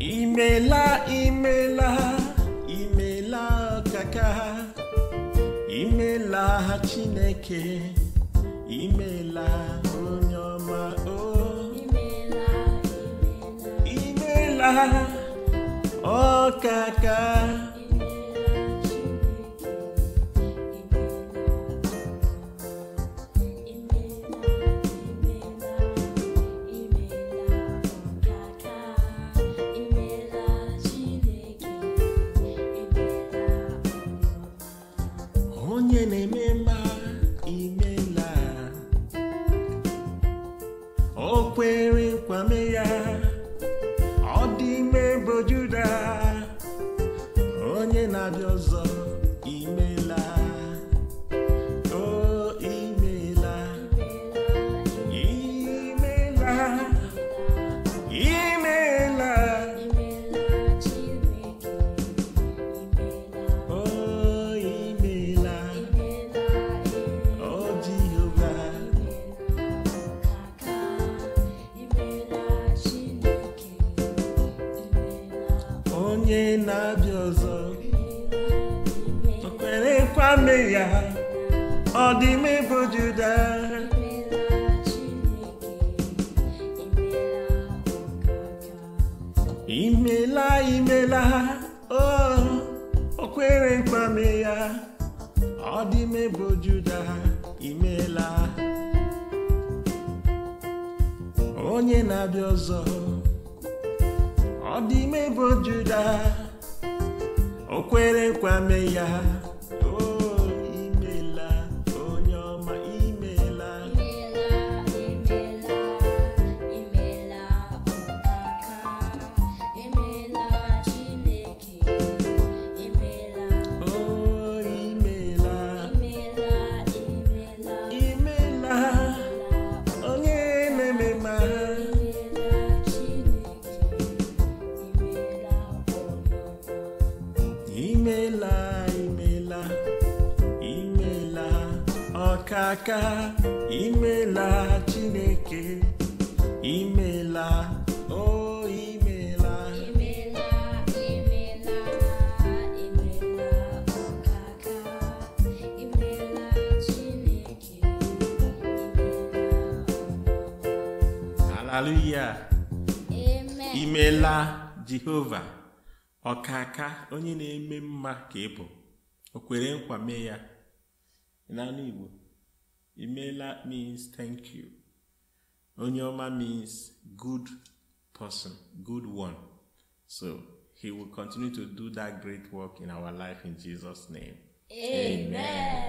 imela imela imela kaka imela chineke imela onye ọma o oh. imela imela ọkaka onye na-eme mma imela o kwere nkwame ya onye na-abịa ọzọ o kwerekwa ya ọ dị m bụ Juda imela imela o kwerekwa ya ọ dị m bụ Juda imela onye na-abịa ọzọ ọ dị ime bụ Juda o kwere nkwa mee ya aka imela chineke imela o oh, imela oh, hallelujah amen imela jehova ọkaka onye na-eme mma ka ị bụ o kwere nkwa mee ya n'ala igbo Imela means thank you. Onyoma means good person, good one. So he will continue to do that great work in our life in Jesus' name. Amen. Amen.